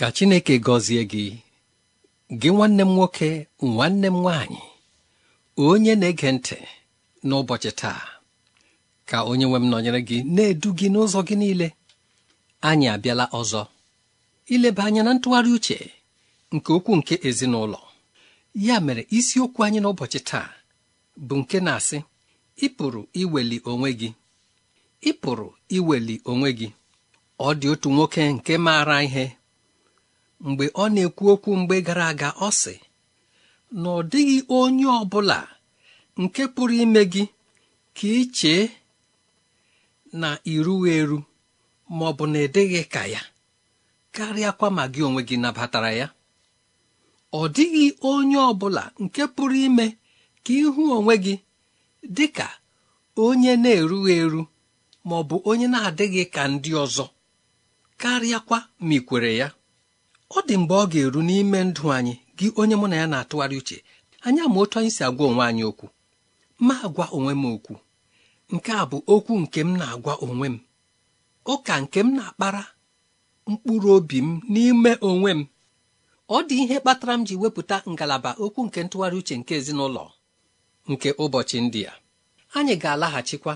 ka Chineke gọzie gị gị nwanne m nwoke nwanne m nwaanyị onye na-ege ntị n'ụbọchị taa ka onye nwe nọnyere gị na-edu gị n'ụzọ gị niile anyị abịala ọzọ ileba anya na ntụgharị uche nke okwu nke ezinụlọ ya mere isiokwu anyị n'ụbọchị taa bụ nke na-asị ị pụrụ iweli onwe gị ị pụrụ iweli onwe gị ọ dị otu nwoke nke maara ihe mgbe ọ na-ekwu okwu mgbe gara aga ọ sị na ọ dịghị onye ọ bụla nke pụrụ ime gị ka ị chee na iruwa eru ma ọ bụ na ịdịghị ka ya karịakwa ma gị onwe gị nabatara ya ọ dịghị onye ọ bụla nke pụrụ ime ka ịhụ onwe gị dị ka onye na-erughị eru ma ọ bụ onye na-adịghị ka ndị ọzọ karịakwa ma ị kwere ya ọ dị mgbe ọ ga-eru n'ime ndụ anyị gị onye mụ na ya na-atụgharị uche anya ma otu anyị si agwa onwe anyị okwu ma agwa onwe m okwu nke a bụ okwu nke m na-agwa onwe m ụka nke m na-akpara mkpụrụ obi m n'ime onwe m ọ dị ihe kpatara m ji wepụta ngalaba okwu nke ntụgharị uche nke ezinụlọ nke ụbọchị ndị a anyị ga-alaghachikwa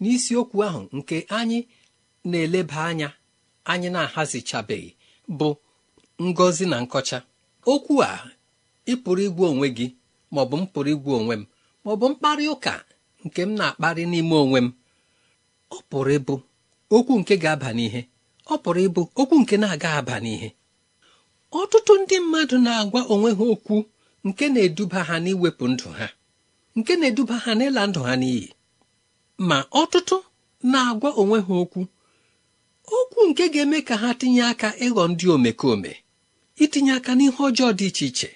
n'isiokwu ahụ nke anyị na-eleba anya anyị na-ahazichabeghị bụ ngọzi na nkọcha okwu a ị pụrụ igwe onwe gị maọbụ m pụrụ igwu onwe m bụ mkparị ụka nke m na-akparị n'ime onwe m ọ pụrụ ịbụ okwu nke ga-aba n'ihe ọ pụrụ ịbụ okwu nke na-aga aba n'ihe ọtụtụ ndị mmadụ na-agwa onwe ha okwu nke na-eduba ha n'iwepụ ndụ ha nke na-eduba ha n'ịla ndụ ha n'iyi ma ọtụtụ na-agwa onwe ha okwu okwu nke ga-eme ka ha tinye aka ịghọ ndị omekome itinye aka n'ihe ọjọọ dị iche iche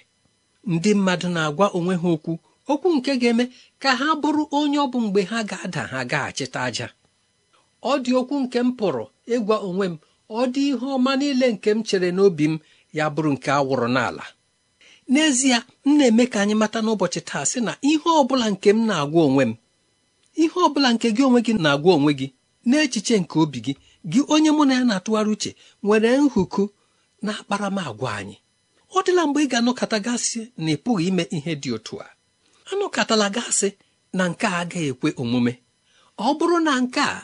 ndị mmadụ na-agwa onwe ha okwu okwu nke ga-eme ka ha bụrụ onye ọ bụ mgbe ha ga-ada ha gaghachite aja ọ dị okwu nke m pụrụ ịgwa onwe m ọ dị ihe ọma niile nke m chere n'obi m ya bụrụ nke awụrụ n'ala n'ezie m na-eme ka anyị mata n'ụbọchị taa sị na ihe ọ bụla nke m na-agwa onwe m ihe ọ bụla nke gị onwe gị na-agwa onwe gị n'echiche nke obi gị gị onye mụ na ya na-atụgharị uche nwere nhụku na akparamagwa anyị ọ dịla mgbe ị ga anụkọta gasị na ị pụghị ime ihe dị otu a anụkọtala gasị na nke a agaghị ekwe omume ọ bụrụ na nke a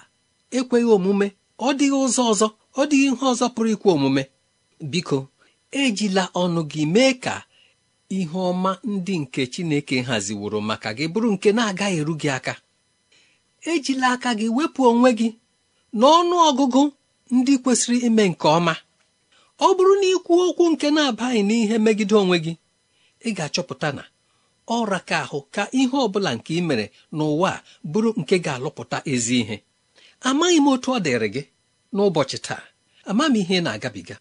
ekweghị omume ọ dịghị ụzọ ọzọ ọ dịghị ihe ọzọ pụrụ ikwe omume biko ejila ọnụ gị mee ka ihe ọma ndị nke Chineke haziworo maka gị bụrụ nke na-agaghị eru gị aka ejila aka gị wepụ onwe gị n'ọnụ ọgụgụ ndị kwesịrị ime nke ọma ọ bụrụ na ikwu okwu nke na-abaghị n'ihe megide onwe gị ị ga-achọpụta na ọra ka ahụ ka ihe ọ bụla nke ị mere n'ụwa bụrụ nke ga-alụpụta ezi ihe amaghị m otu ọ dịrị gị n'ụbọchị taa ama m ihe na-agabiga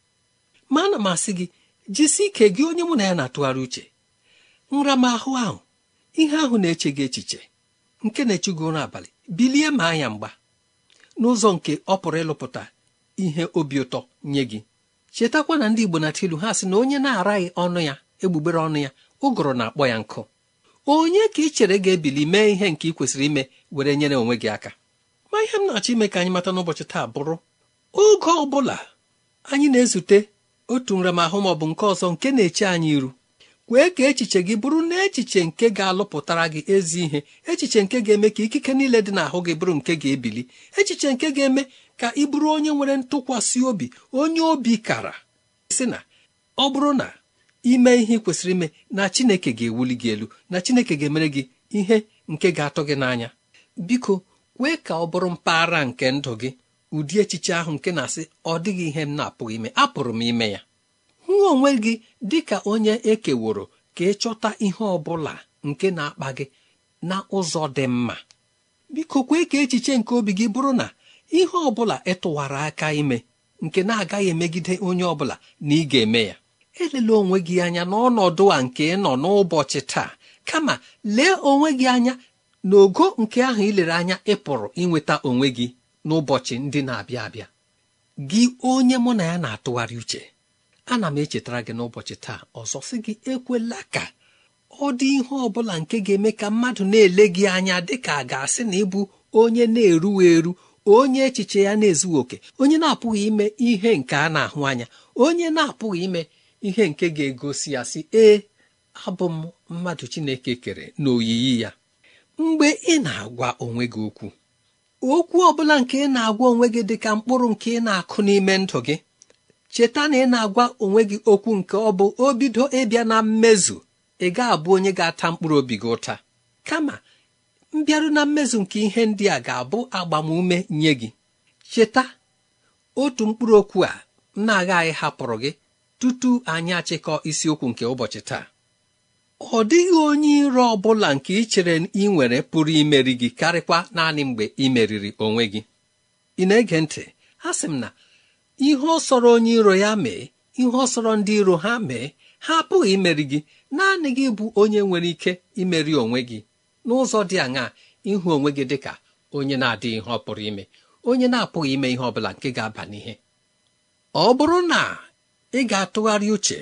ma ana m asị gị jisi ike gị onye mụ na ya na-atụgharị uche nramahụ ahụ ihe ahụ na-eche gị echiche nke na-echugo ụra abalị bilie ma anya mgba n'ụzọ nke ọ pụrụ ịlụpụta ihe obi ụtọ nye gị chetakwa na ndị igbo na-atụ ha sị na onye na-araghị ọnụ ya egbugbere ọnụ ya ụgụrụ na-akpọ ya nkụ onye ka ị chere ga-ebili mee ihe nke ị kwesịrị ime were nyere onwe gị aka ma ihe m na-achọ ime ka anyị mata n'ụbọchị taa bụrụ oge ọ bụla anyị na-ezute otu nramahụ ma ọ bụ nke ọzọ nke na-eche anyị iru kwee ka echiche gị bụrụ na echiche nke ga-alụpụtara gị ezi ihe echiche nke ga-eme ka ikike niile dị n'ahụ gị bụrụ nke ga-ebili echiche nke ga-eme ka ị bụrụ onye nwere ntụkwasị obi onye obi kara sị na ọ bụrụ na ime ihe kwesịrị ime na Chineke ga-ewuli gị elu na Chineke ga-emere gị ihe nke ga-atọ gị n'anya biko kwee ka ọ bụrụ mpaghara nke ndụ gị ụdị echiche ahụ nke na-asị ọ dịghị ihe m na-apụghị ime apụrụ m ime ya hụ onwe gị dị ka onye ekeworo ka ị chọta ihe ọ bụla nke na-akpa gị na ụzọ dị mma biko kwee ka echiche nke obi gị bụrụ na ihe ọ bụla ịtụwara aka ime nke na-agaghị emegide onye ọ bụla na ị ga-eme ya elele onwe gị anya n'ọnọdụ a nke ị nọ n'ụbọchị taa kama lee onwe gị anya n'ogo nke ahụ ilere anya ị pụrụ inweta onwe gị n'ụbọchị ndị na-abịa abịa gị onye mụ na ya na-atụgharị uche ana m echetara gị n'ụbọchị taa ọzọ sị gị ekwela ka ọ dị ihe ọ bụla nke ga-eme ka mmadụ na-ele gị anya dịka a ga-asị na ịbụ onye na-eruwa eru onye echiche ya na-ezughị oke onye na-apụghị ime ihe nke a na-ahụ anya onye na-apụghị ime ihe nke ga-egosi ya sị ee abụ m mmadụ chineke kere n'oyiyi ya mgbe ị na-agwa onwe gị okwu okwu ọ bụla nke ị na-agwa onwe gị dị ka mkpụrụ nke ị na-akụ n'ime ndụ gị cheta na ị na-agwa onwe gị okwu nke ọ bụ obido ịbịa na mmezu ị ga-abụ onye ga-ata mkpụrụ obi gị ụta kama mbịaru na mmezu nke ihe ndị a ga-abụ agbamume nye gị cheta otu mkpụrụ okwu a m na-agaghị hapụrụ gị tutu anyị achịkọ isiokwu nke ụbọchị taa ọ dịghị onye iro ọ bụla nke ị chere ị nwere pụrụ imeri gị karịkwa naanị mgbe ị meriri onwe gị ị na-ege ntị ha sị m na ihe ọ sọrọ onye iro ya mee ihe ọsọrọ ndị iro ha mee ha apụghị imeri gị naanị gị bụ onye nwere ike imeri onwe gị n'ụzọ dị aṅaa ịhụ onwe gị dị ka onye na-adịghị ihe ọ pụrụ ime onye na-apụghị ime ihe ọ bụla nke ga-aba n'ihe ọ bụrụ na ị ga-atụgharị uche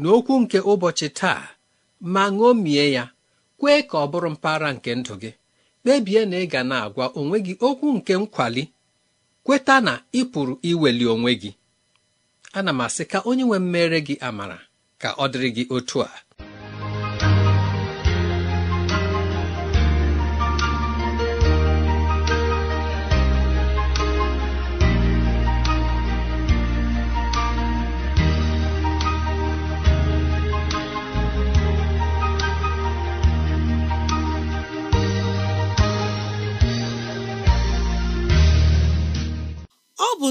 n'okwu nke ụbọchị taa ma ṅomie ya kwee ka ọ bụrụ mpaghara nke ndụ gị kpebie na ị ga na-agwa onwe gị okwu nke nkwali kweta na ị pụrụ iweli onwe gị ana m asị ka onye nwe mmere gị amara ka ọ dịrị gị otu a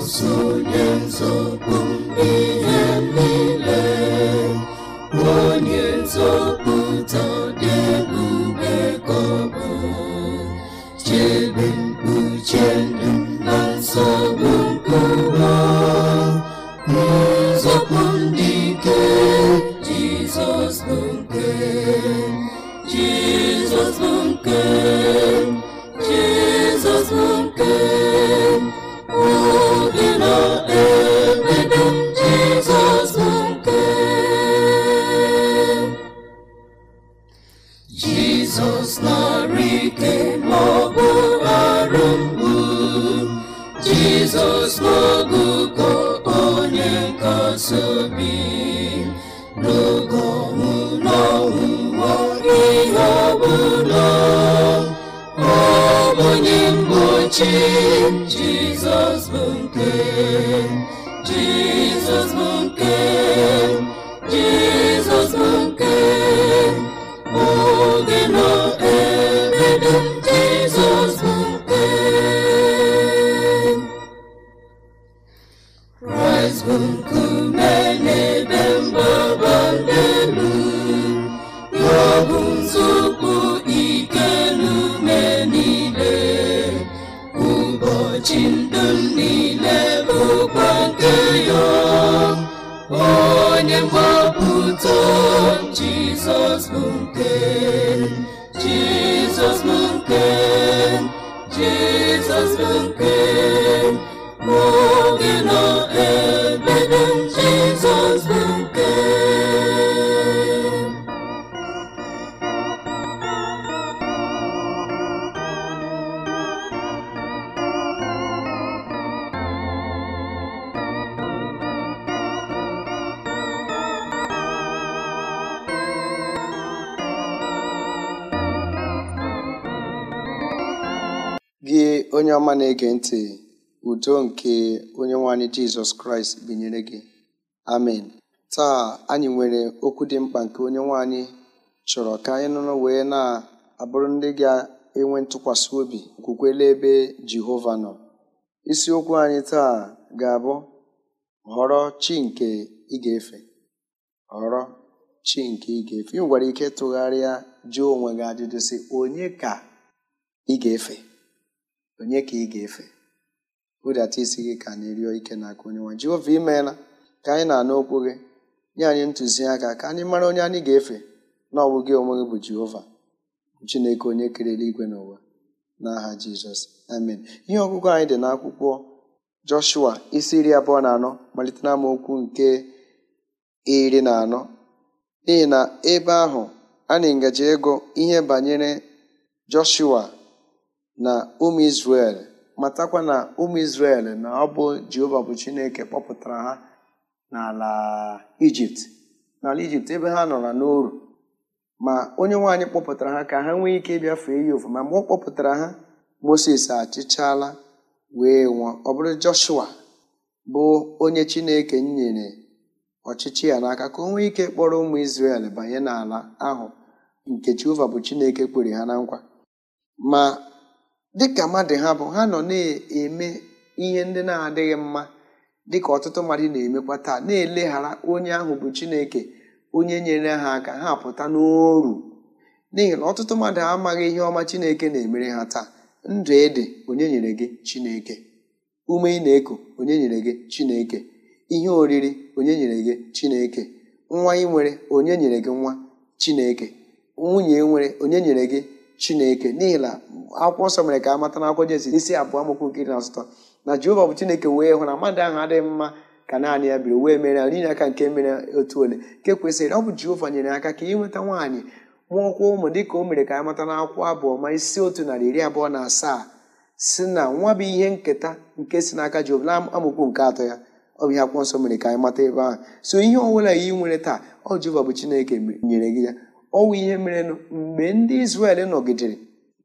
so, nwere ike ma ọ bụ arụ mgbu jizọs n'ogugo onye nkasi obi n'oge ihe ọbụla onye mgbochi bụ nke jizọs bụ nke onye mgbapụta jizọs bụ nke jizọs bụ nke jizọs bụ onye ọma na-ege ntị udo nke onye nwanyị jizọs kraịst binyere gị amen taa anyị nwere okwu dị mkpa nke onye nwanyị chọrọ ka anyị nụrụ wee na-abụrụ ndị ga-enwe ntụkwasị obi kwukwele ebe jehova nọ isiokwu anyị taa ga-abụ họrọ chi nke ị efe họrọ chi nke ị efe ị nwere ike tụgharịa jụọ onwe gị ajụjụ si onye ka ị ga-efe onye ka ị ga-efe atụ isi gị ka anyị rịọ ike n'aka onye nwa Jehova imeela ka anyị na-anụ okwu gị nye anyị ntụziaka ka anyị mara onye anyị ga-efe na ọ bụ onwe gị bụ Jehova Chineke onye kere igwe n'ụwa n'aha Jizọs amen ihe ọgụgụ anyị dị n'akwụkwọ Joshua isi iri abụọ na anọ malite na amaokwu nke iri na anọ n'ihi na ebe ahụ a na ngaji ego ihe banyere Joshua na ụmụ Izrel matakwa na ụmụ Izrel na ọ bụ Jehova bụ Chineke kpọpụtara ha n'ala Ijipt n'ala Ijipt ebe ha nọrọ n'oru ma onye nwaanyị kpọpụtara ha ka ha nwee ike ịbịa fee ya ofu ma ọ kpọpụtara ha Moses achịchala wee nwụọ ọ bụrụ Joshua bụ onye Chineke nyere ọchịchị ya n'aka ka o nwee ike kpọrọ ụmụ isrel banye n'ala ahụ nke Jehova bụ Chineke kwere ha na nkwa ma dịka mmadụ ha bụ ha nọ na-eme ihe ndị na-adịghị mma dịka ọtụtụ mmadụ na-emekwa taa na-eleghara onye ahụ bụ Chineke onye nyere ha aka ha pụta n'oru n'ihi na ọtụtụ mmadụ amaghị ihe ọma Chineke na-emere ha taa ndụ ede onye nyere gị Chineke ume ị na eko onye nyere gị Chineke ihe oriri onye nyere gị Chineke nwa ị nwere onye nyere gị nwa Chineke nwunye nwere onye nyere gị chineke n'ihi na akwụkwọ nsọ mere ka a mata n'akwụkwọ Jenesis isi abụọ amaokwu nke na asụtọ na jehova bụ chineke wee hụ na mmadụ ahụ adịghị mma ka naanị ya biri wee mere ya n'ihi aka nke mere otu ole nke kwesịrị ọ bụ jehova nyere aka ka nweta nwaanyị mụọkwa ụmụ dịka o mere ka a mata n'akwụkwọ abụọ ma isi otu narị iri abụọ na asaa si na nwa bụ ihe nketa nke si n'aka jehova na nke atọ ya ọ bụ ihe akwụkwọ nsọ mere ka anyị mata ebe ahụ so ihe ọbụla yi nwere taa ọ jehova bụ chineke nyere gị ya ọnwụ ihe merenụ mgbe ndị Izrel nọgidere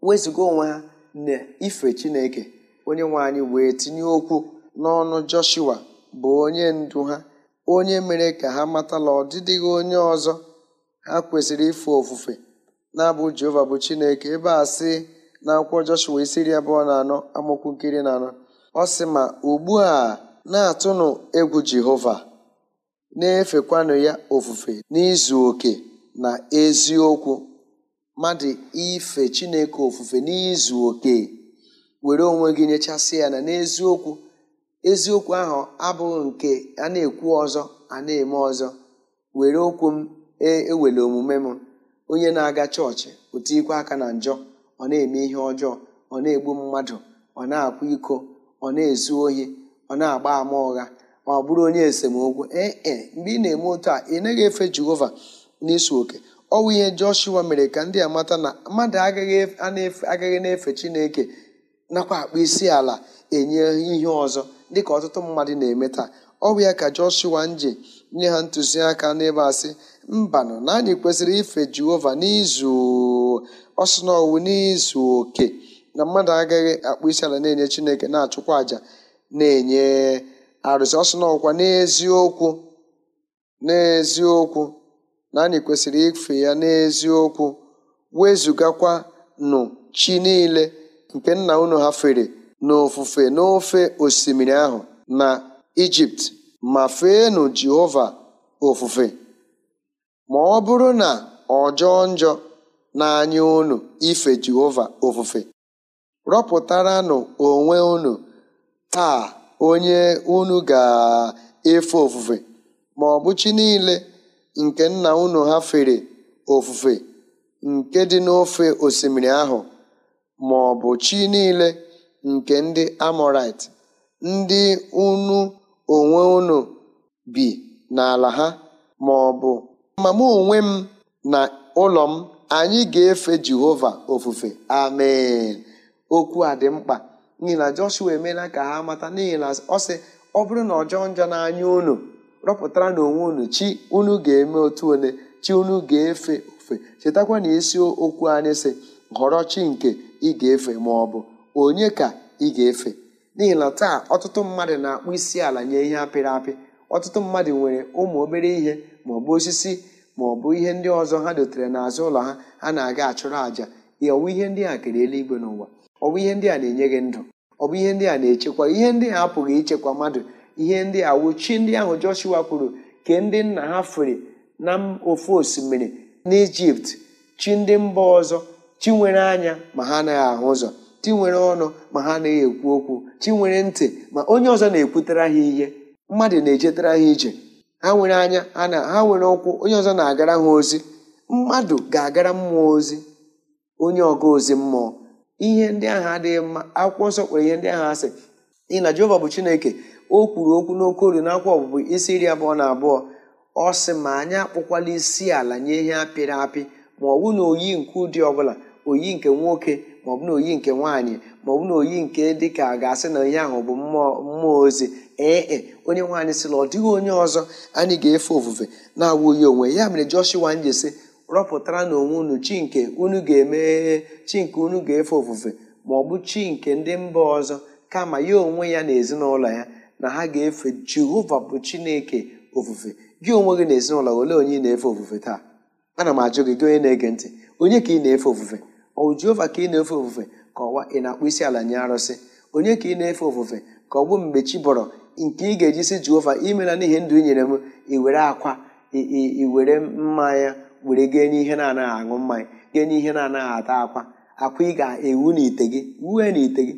wezụga onwe ha na ife Chineke onye nwe anyị wee tinye okwu n'ọnụ Joshua bụ onye ndu ha onye mere ka ha matala ọdịdịghị onye ọzọ ha kwesịrị ife ofufe na-abụ Jehova bụ Chineke ebe a sị na akwụkwọ Joshua isi iri abụọ na anọ amụkwu nkiri na anọ ọ sị ma ugbu a na-atụnụ egwu Jehova na-efekwanụ ya ofufe n'izu oke na eziokwu mmadụ ife chineke ofufe n'izu oke were onwe gị nyechasị ya na n'eziokwu eziokwu ahụ abụghị nke a na-ekwu ọzọ a na-eme ọzọ were okwu m e, ewele omume m onye na-aga chọọchị o ikwe aka na njọ ọ na-eme ihe ọjọọ ọ na-egbu mmadụ ọ na-akwa iko ọ na-ezu ohi ọ na-agba ama ụgha ọ bụrụ onye esemokwu ee e, mgbe ị na-eme otu a ị naghị efe jehova n'isu oke ọwụ ihe Joshua mere ka ndị amata na mmadụ agaghị na-efe Chineke nakwa akpụ isi ala enye ihe ọzọ dịka ọtụtụ mmadụ na-eme taa ọwụ ya ka Joshua nje nye ha ntụziaka n'ebe asị mbanụ na anyị kwesịrị ife Jehova n'izu ọsụ ọwụ n'izu oke na mmadụ agaghị akpụ isi ala na-enye Chineke na-achụkwa àjà na-enye arụsị ọsụ na n'eziokwu n'eziokwu na anyị kwesịrị ife ya n'eziokwu wezugakwa nụ chi niile nke nna unu ha fere n'ofufe n'ofe osimiri ahụ na ijipt ma feenu jehova ofufe ma ọ bụrụ na ọjọọ njọ na n'anya unu ife jehova ofufe rọpụtaranụ onwe unu taa onye unu ga-efe ofufe ma ọ bụ chi niile nke nna unu ha fere ofufe nke dị n'ofe osimiri ahụ ma ọ bụ chi niile nke ndị Amọrait ndị unu onwe unu bi n'ala ha ma ọ bụ ma mụ onwe m na ụlọ m anyị ga-efe Jehova ofufe amen okwu a dị mkpa n'ihi na Joshua emeela ka ha mata n'ihi na ọ sị ọ bụrụ na ọ jọọ njọ n'anya unu rọpụtara na onwe unu chi unu ga-eme otu ole chi unu ga-efe ofe chetakwa na isi okwu anyị si họrọ chi nke ị ga-efe ma ọ bụ onye ka ị ga-efe n'ihi na taa ọtụtụ mmadụ na-akpụ isi ala nye ihe apịrị apị ọtụtụ mmadụ nwere ụmụ obere ihe ma ọ bụ osisi ma ọ bụ ihe ndị ọzọ ha dotere n'azụ ụlọ ha ha na-aga achụrụ àjà ọwụ ihe ndị a kere eluigwe n'ụwa ọwụ ihe ndị a na-enye gị ndụ ọ bụ ihe ndị a na-echekwa ihe ndị a apụghị ichekwa mmadụ ihe ndị a chi ndị ahụ Joshua kwuru ke ndị nna ha fere na ofu osimiri n'Ijipt chi ndị mba ọzọ chi nwere anya ma ha anaghị ahụ ụzọ chi nwere ọnụ ma ha anaghị ekwu okwu chi nwere ntị ma onye ọzọ na ekwutere ha ihe mmadụ na-ejetara ha ije ha nwere anya ha nwere ụkwụ onye ọzọ na-agara ha ozi mmadụ ga-agara mmụọ ozi onye ọga ozi mmụọ ihe ndị ahụ adịghị mma akwụkwọ nsọ kwere ihe ndị ahụ asị n'ihi na Jehova bụ Chineke o kwuru okwu n'oke olu n'akwa ọbụbụ isi iri abụọ na abụọ ọ sị ma anyị akpụkwala isi ala nye ihe apịrị apị ma ọ bụ na oyi nke ụdị ọbụla oyi nke nwoke ma ọ bụ na oyi nke nwaanyị ma ọ bụ na oyi nke dịka ga-asị na ihe ahụ bụ mmụọ ozi ee e, onye nwaanyị sịla ọ dịghị onye ọzọ anyị ga-efe ofufe na-awụghị onwe ya mere Joshua njesi rọpụtara na onwe unu chi nke unu ga-emeghe chi nke unu ga-efe ofufe ma ọ bụ chi nke ndị mba ọzọ kama ya onwe ya na ezinụlọ ya na ha ga-efe jehova bụ chineke ofufe gị onwe gị n'ezinụlọ ezinụlọ olee onye ị na-efe ofufe taa ana m ajụ gị gị onye na-ege ntị onye ka ị na-efe ofufe ọ jehova ka ị na-efe ofufe ka ọwa ị na-akpụ isi ala nye arụsị onye ka ị na-efe ofufe ka ọ bụ mgbe chi bọrọ nke ị ga-eji si jehova imela n'ihi ndụ i nyere m i were akwa i were mmanya were gee n'ihe na-anaghị aṅụ mmanya gee n'ihe na-anaghị ata akwa akwa ị ga-ewu n'ite gị wue n'ite gị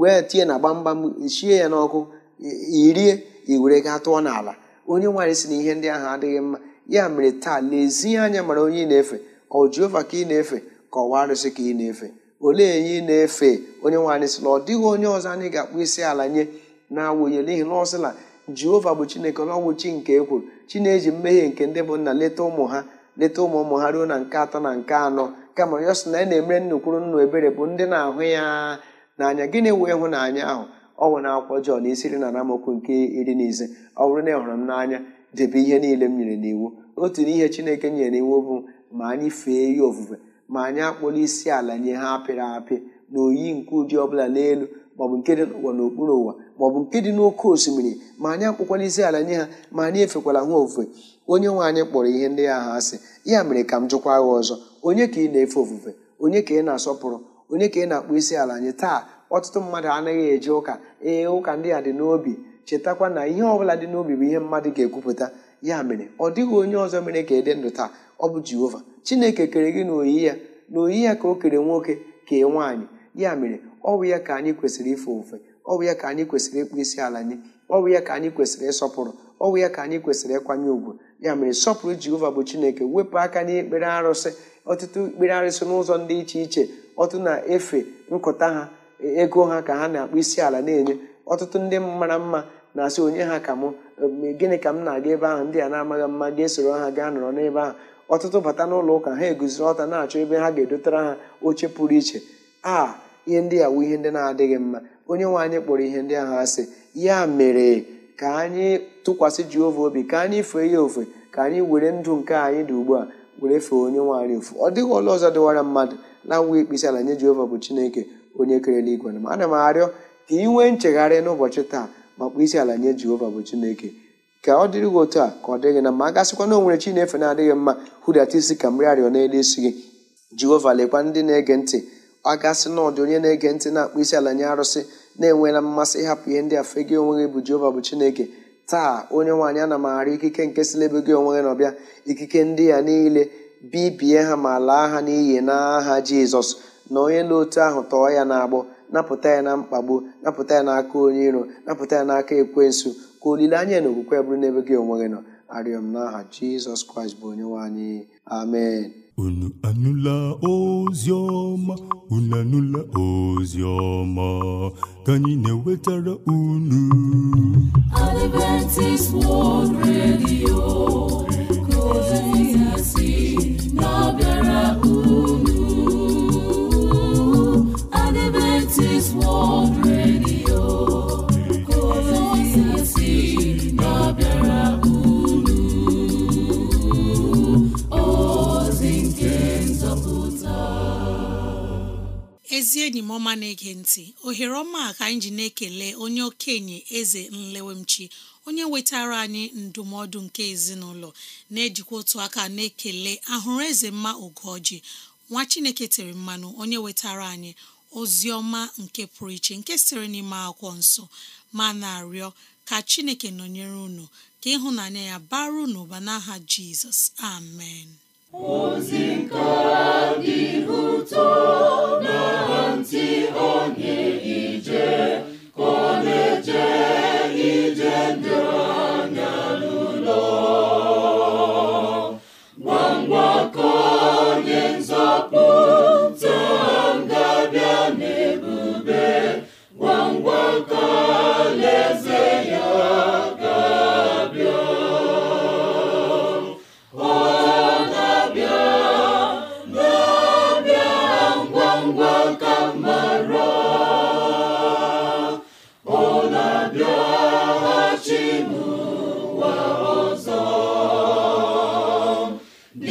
wee tie na gbamgbam shie ya n'ọkụ irie i were gaa tụọ n'ala onye nwaanyị si na ihe ndị ahụ adịghị mma ya mere taa lezie anya mara onye ị na-efe ọ Jehova ka ị na-efe ka ọwa arụsị ka ị na-efe olee enye ị na-efe onye nwaanyị si na ọ dịghị onye ọzọ anyị ga-akpụ isi ala nye na-awụnye n'ihi na ọ sịla bụ chineke na chi nke ekwuru chi na-eji mmehie nke ndị bụ nna leta ụmụ ha leta ụmụ ụmụ ha ruo na nke atọ na nke anọ kama ya sị na ya e na-emere nnukwuru nnu ebere bụ ndị na-ahụ ya n'anya gịnị wee hụ n'anya ahụ ọ nwere akwụkwọ Jọn isi iri na amaokwu nke iri na ọ bụrụ na ị e hụrụ m n'anya debe ihe niile m nyere n'iwu otu n'ihe Chineke nyere n'iwu bụ ma anyị fee ya ofufe ma anyị akpọla isi ala nye ha apịrị apị na oyi nke ụdị ọbụla n'elu maọbụ nke dị n'ụwa n'okpuru ụwa maọbụ nke dị n'oké osimiri ma anyị akpụkwala isi ala nye ha ma anyị efekwala ha ofufe onye nwe anyị kpọrọ ihe ndị ya ha asị ya mere ka m jụkwa ha ọzọ onye ka ị na-efe ofufe onye ka ị na-asọpụrụ onye ka ị na akpụ isi ala anyị taa ọtụtụ mmadụ anaghị eje ụka ee ụka ndị a dị n'obi chetakwa na ihe ọbụla dị n'obi bụ ihe mmadụ ga-ekwupụta ya mere ọ dịghị onye ọzọ mere ka ịdị ndụ taa ọ bụ jehova chineke kere gị n'oyi ya n'oyi ya ka o kere nwoke ka kee nwaanyị ya mere ọ bụ ya ka anyị kwesịrị ife ofe ọ bụ ya ka anyị kwesịrị ịkpụ isi ala nye ọ bụ ya ka anyị kwesịrị ịsọpụrụ ọ bụ ya ka anyị kwesịrị ịkwanye ùgwù ya mere sọpụrụ jehova bụ chineke wepụ aka n'ikpere arụsị ọtụtụ ikpere arụsị n'ụzọ dị iche iche ọtụ na-efe nkụta ha ego ha ka ha na-akpụ isi ala na-enye ọtụtụ ndị mara mma na-asị onye ha ka mụ um, gịnị ka m na-aga ebe ahụ ndị a na-amaghị mma ga-esoro ha gaa nọrọ n'ebe ahụ ọtụtụ bata n'ụlọ ụka ha eguziri ọta na-achọ ebe ha ga-edotara ha oche pụrụ iche a ihe ndị a wu ihe ndị na-adịghị mma onye nwe anyị kpọrọ ihe ndị ahụ asị ya mere ka anyị tụkwasị Jehova obi ka anyị fee ya ofe ka anyị were ndụ nke anyị dị ugbu a were fee onye nwe anyị ofu ọ dịghị ọla ọzọ dịwara mmadụ na-awụ ikpisi ala nye jeova bụ Chineke onye kere eluigwe na ana m arịọ ka ị nwee nchegharị n'ụbọchị taa ma isi ala nye jehova bụ chineke ka ọ dịrị gị otu a ka ọ dịghị na mma gasịkwa na o nwere chi na-efe na-adịghị mma hụdata isi ka mmeri arịọ n'elu isi gị jehova lekwa ndị na-ege ntị ọ gasị na ọdị onye na-ege ntị na-akpọ isi ala nye arụsị na-enwela mmasị ịhapụ ihe ndị afọ gị onwe gị bụ jehova bụ chineke taa onye nwaanyị ana m arịọ ikike nke si n'ebe gị onwe gị na ọbịa ikike ndị ya niile bibie ha ma laa ha n'iyi n'aha jizọs na onye n'otu ahụ tọọ ya n'agbọ napụta ya na mkpagbu napụta ya n'aka onye iro napụta ya n'aka ekwensu ka olileanya na okwukwe bụrụ n'ebe gị onwe gị nọ arịọ m n'aha jizọs kraịst bụ onye anyị amen unu anụla ozi ọma unu anụla ozi ọma ka anyị na-ewetara unu Adventist World Radio ezi enyi m ọma na-ege ntị ohere ọma ka anyị ji na-ekele onye okenye eze nlewemchi onye wetara anyị ndụmọdụ nke ezinụlọ na-ejikwa otu aka na-ekele ahụrụ eze mma ogoji nwa chineke tere mmanụ onye wetara anyị ozi nke pụrụ iche nke sịrị n'ime akwụkwọ nsọ ma na-arịọ ka chineke nọnyere unu ka ịhụnanya ya bara unu ụba n'aha jizọs amen ozi nke dị ụtọ na ntị onye ije ka ọ na bụ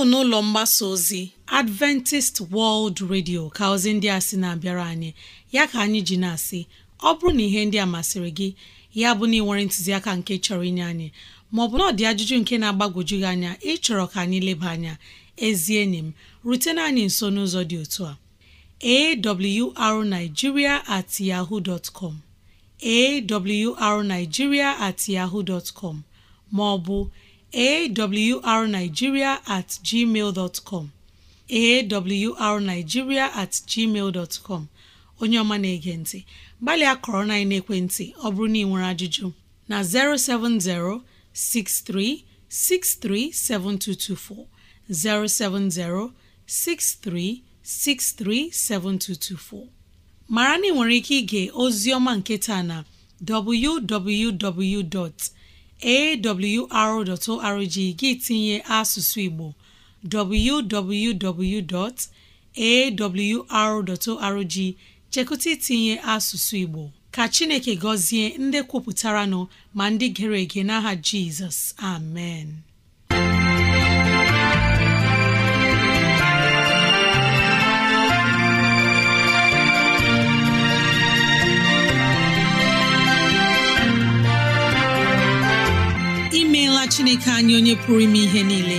ọ n'ụlọ mgbasa ozi adventist world radio ka ozi ndị a sị na-abịara anyị ya ka anyị ji na-asị ọ bụrụ na ihe ndị a masịrị gị ya bụ na ị nwere ntụziaka nke chọrọ inye anyị maọbụ na ọ dị ajụjụ nke na-agbagwoju gị anya ịchọrọ ka anyị leba anya ezi enyi m rutena anyị nso n'ụzọ dị otu a arigiria at yahoo dot com awrnigeria at maọbụ arigiria at com at onye ọma na-ege ntị gbalịa kọrọ na ekwentị ọ bụrụ na ị nwere ajụjụ na 070 07063637224 mara na ị nwere ike ige Ozioma nketa na www.awr.org gị tinye asụsụ Igbo www.awr.org chekụta itinye asụsụ Igbo ka chineke gọzie ndị kwupụtara nọ ma ndị gere ege n'aha jizọs amen imeela chineke anyị onye pụrụ ime ihe niile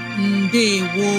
ndewo